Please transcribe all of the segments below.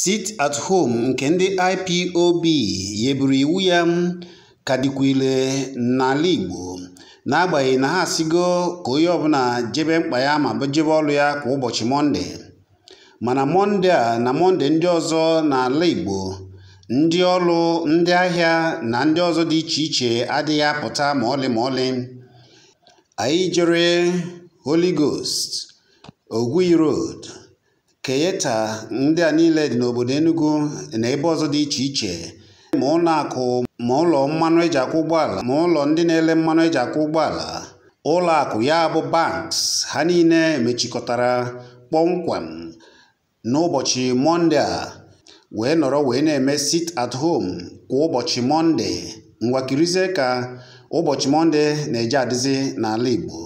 Sit-at-Home nke ndị IPOB yeburu iwu ya ka dịkwa n'ala Igbo, n'agbanyeghị na ha asigo ka onye ọbụla jebe mkpa ya ma jebe ọrụ ya kwa ụbọchị Mọnde, mana Mọnde a na Mọnde ndị ọzọ n'ala Igbo, ndị ọrụ, ndị ahịa na ndị ọzọ dị iche iche adịghị apụta ma ọlị ma ọlị. Anyị jere Holy Ghost, keyeta ndị a niile dị n'obodo Enugu na ebe ọzọ dị iche iche ma ụlọakụ ma ụlọ mmanụ eji akwụ ụgbọala ma ụlọ ndị na-ele mmanụ eji akwụ ụgbọala akụ ya bụ banks ha niile mechikọtara kpọmkwem n'ụbọchị Mọnde a wee nọrọ wee na-eme sit at home kwa ụbọchị Mọnde ngwakirizie ka ụbọchị Mọnde na-eje adịzi n'ala Igbo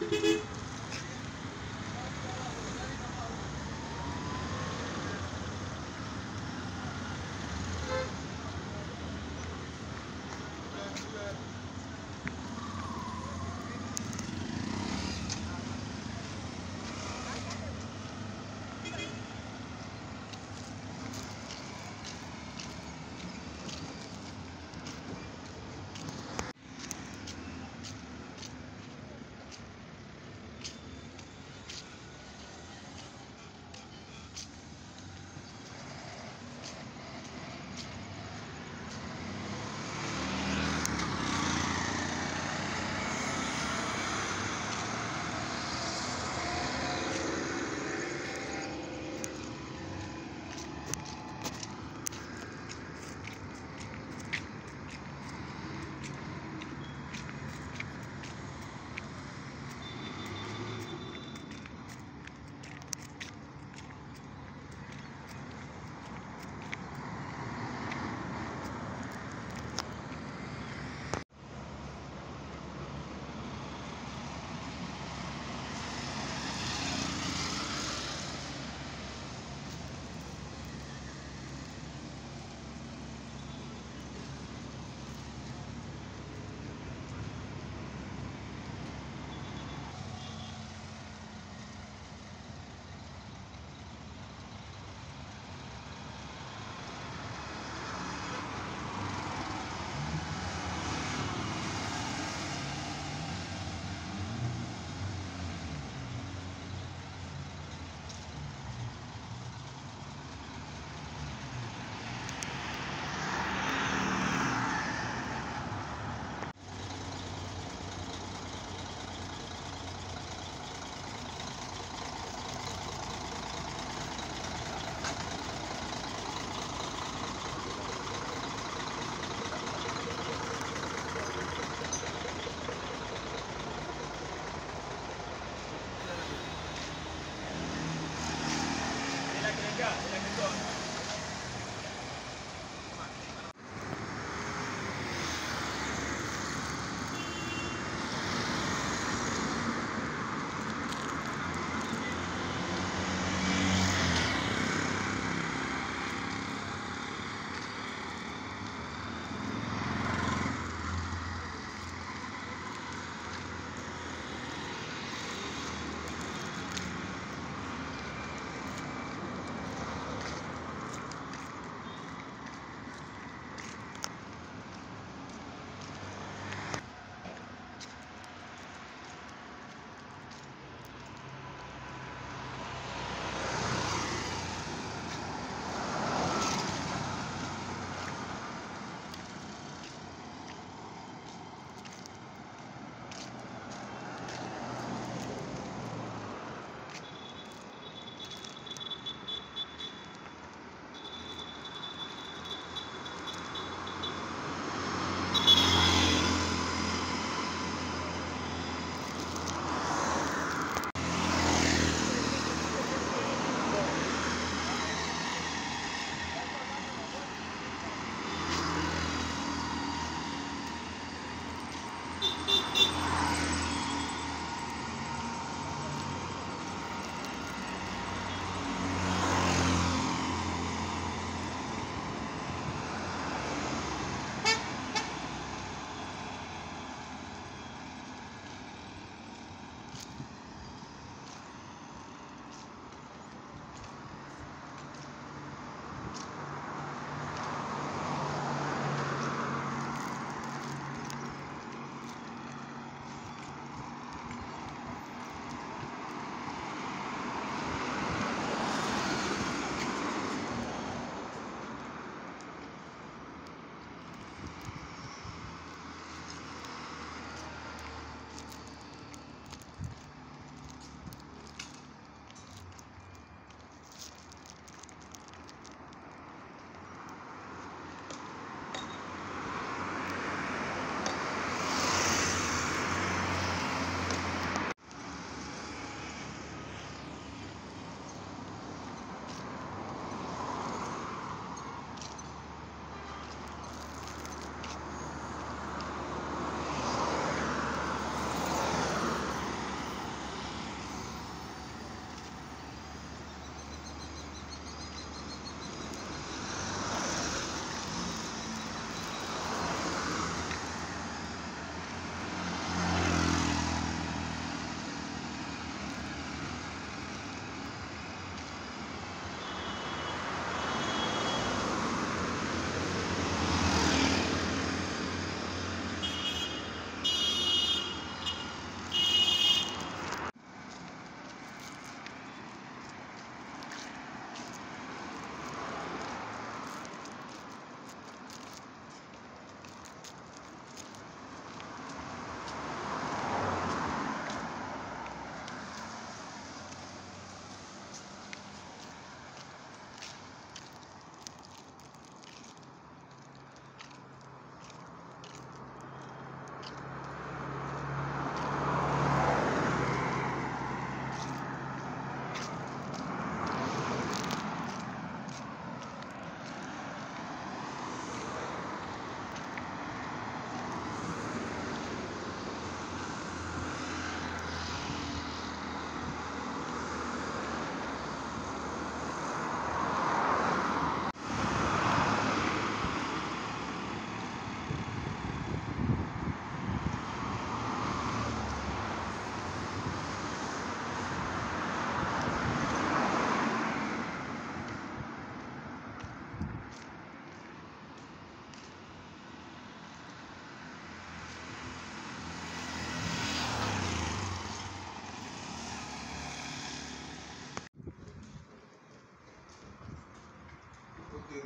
Thank you.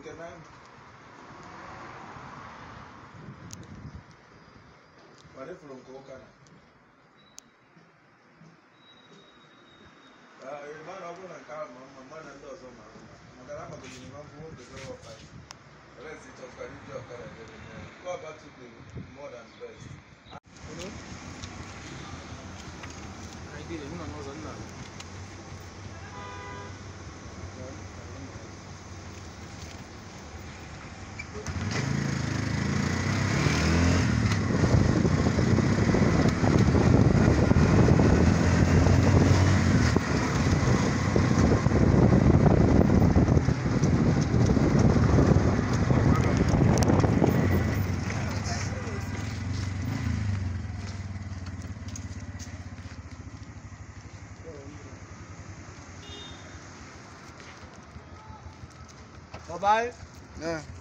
كمان ورفلون كوكانا hermano, hago una cara, mamá, mandando a su mamá. Magalama kò ní máa ń fowó gbèsè wọ̀ fàyè. Rẹ̀ sì tọ́ka níbi ọ̀kadà jẹ́ nìyẹn. Kọ́ àbá tún lè mọ̀ than best. 拜拜。嗯。